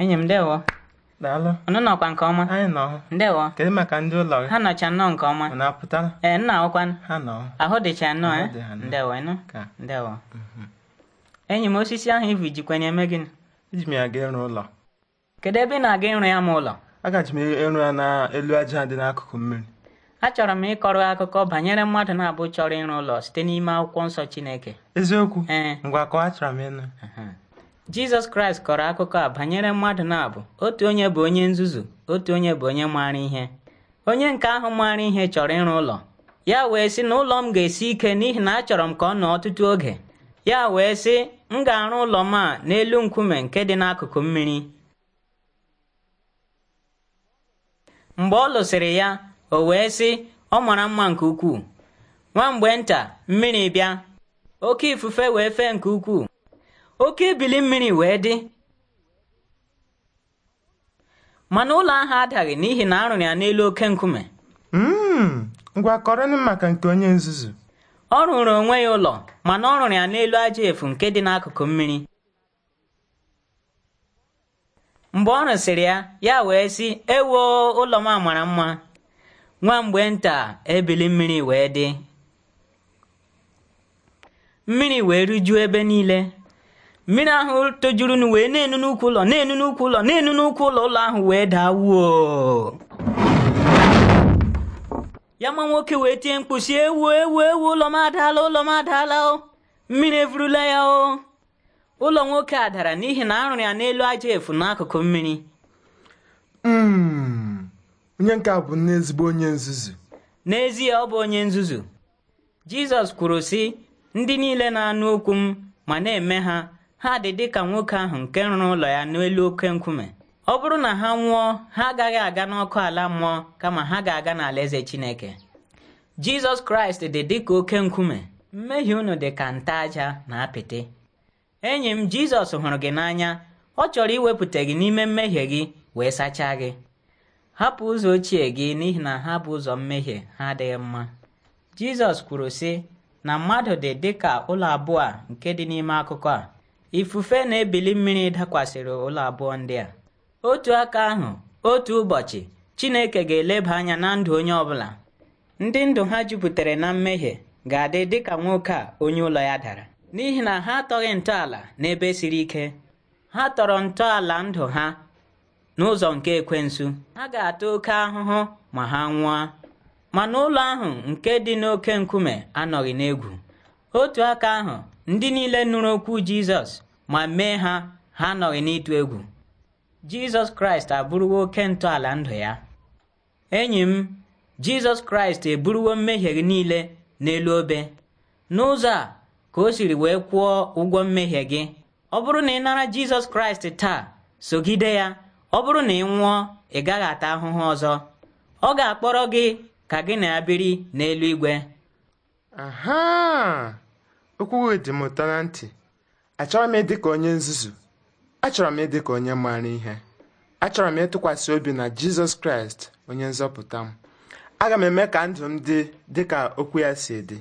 enyi m ndewo daalụ unu nọkwa nke ọma anyị nọ ndewo kedu maka ndị ụlọ gị ha nọcha nnọọ nke ọma ee nna ahụkwa ha ahụ dịcha nnọọ e ndewo ịnụ ndewo mhm. enyi m osisi ahụ ivu jikwa na-eme gịnị eji m ya ga ịrụ ụlọ kedu ebe ị na-aga ịrụ ya ma ụlọ agaji m ịrụ ya n'elu aja dị n'akụkụ mmiri achọrọ m ịkọrọ akụkọ banyere mmadụ na-abụ chọrọ ịrụ ụlọ site n'ime akwụkwọ nsọ Chineke eziokwu ngwa kọọ achọrọ m ịnụ Jizọs Kraịst kọrọ akụkọ a banyere mmadụ na-abụ otu onye bụ onye nzuzu otu onye bụ onye maara ihe onye nke ahụ maara ihe chọrọ ịrụ ụlọ ya wee sị na ụlọ m ga-esi ike n'ihi na achọrọ m ka ọ nọ ọtụtụ oge ya wee sị m ga-arụ ụlọ m a n'elu nkume nke dị n'akụkụ mmiri mgbe ọ lụsịrị ya o wee sị ọ mara mma nke ukwuu nwa mgbe nta mmiri bịa oke ifufe wee fee nke ukwuu oke ebili mmiri wee dị mana ụlọ ahụ adaghị n'ihi na arụrụ ya n'elu oke nkume hmm, ngwa maka nke onye nzuzu ọ rụrụ onwe ya ụlọ mana ọ rụrụ ya n'elu aja efu nke dị n'akụkụ mmiri mgbe ọ rụsịrị ya ya wee sị ewoo ụlọ m mara mma nwa mgbe nta ebili mmiri wee dị mmiri wee rijuo ebe niile mmiri ahụ tojurunu wee na-enu n'ukwu ụlọ na-enu n'ukwu ụlọ na-enu n'ukwu ụlọ ụlọ ahụ wee daa wuo ya e e e ma nwoke wee tie mkpusi ewu ewu ewu ụlọ m adaala ụlọ m adaala o mmiri evurula ya o ụlọ nwoke a dara n'ihi na arụrụ ya n'elu aja efu n'akụkụ mmiri hmm. onye nke bụ n'ezigbo onye nzuzu n'ezie ọ bụ onye nzuzu jizọs kwuru sị ndị niile na-anụ okwu m ma na-eme ha ha dị dịka nwoke ahụ nke rụrụ ụlọ ya n'elu oke nkume ọ bụrụ na ha nwụọ ha agaghị aga n'ọkụ ala mmụọ kama ha ga-aga n'ala eze Chineke Jizọs Kraịst dị dị ka oke nkume mmehie unu dị ka nta aja na apịtị enyi m Jizọs hụrụ gị n'anya ọ chọrọ iwepụta gị n'ime mmehie gị wee sachaa gị hapụ ụzọ ochie gị n'ihi na ha bụ ụzọ mmehie ha adịghị mma Jizọs kwuru sị na mmadụ dị dị ka ụlọ abụọ a nke dị n'ime akụkọ a ifufe na-ebili mmiri dakwasịrị ụlọ abụọ ndị a otu aka ahụ otu ụbọchị Chineke ga-eleba anya na ndụ onye ọbụla ndị ndụ ha jupụtara na mmehie ga-adị dịka nwoke a onye ụlọ ya dara n'ihi na ha atọghị ntọala n'ebe siri ike ha tọrọ ntọala ndụ ha n'ụzọ nke ekwensu ha ga-ata oke ahụhụ ma ha nwụọ mana ụlọ ahụ nke dị n'oke nkume anọghị n'egwu otu aka ahụ ndị niile nụrụ okwu Jizọs ma mee ha ha nọghị n'ịtụ egwu Jizọs Kraịst abụrụwo oke ntọala ndụ ya enyi m Jizọs Kraịst eburuwo mmehie gị niile n'elu obe n'ụzọ a ka o siri wee kwụọ ụgwọ mmehie gị ọ bụrụ na ị nara Jizọs Kraịst taa sogide ya ọ bụrụ na ị nwụọ ị gaghị ata ahụhụ ọzọ ọ ga-akpọrọ gị ka gị na ya biri n'eluigwe igwe Okwu dị m ụtọ na ntị. achọrọ m ịdị ka onye nzuzu. Achọrọ m ịdị ka onye maara ihe. Achọrọ m ịtụkwasị obi na Jizọs Kraịst, onye nzọpụta m. Aga m eme ka ndụ m dị dị ka okwu ya si dị.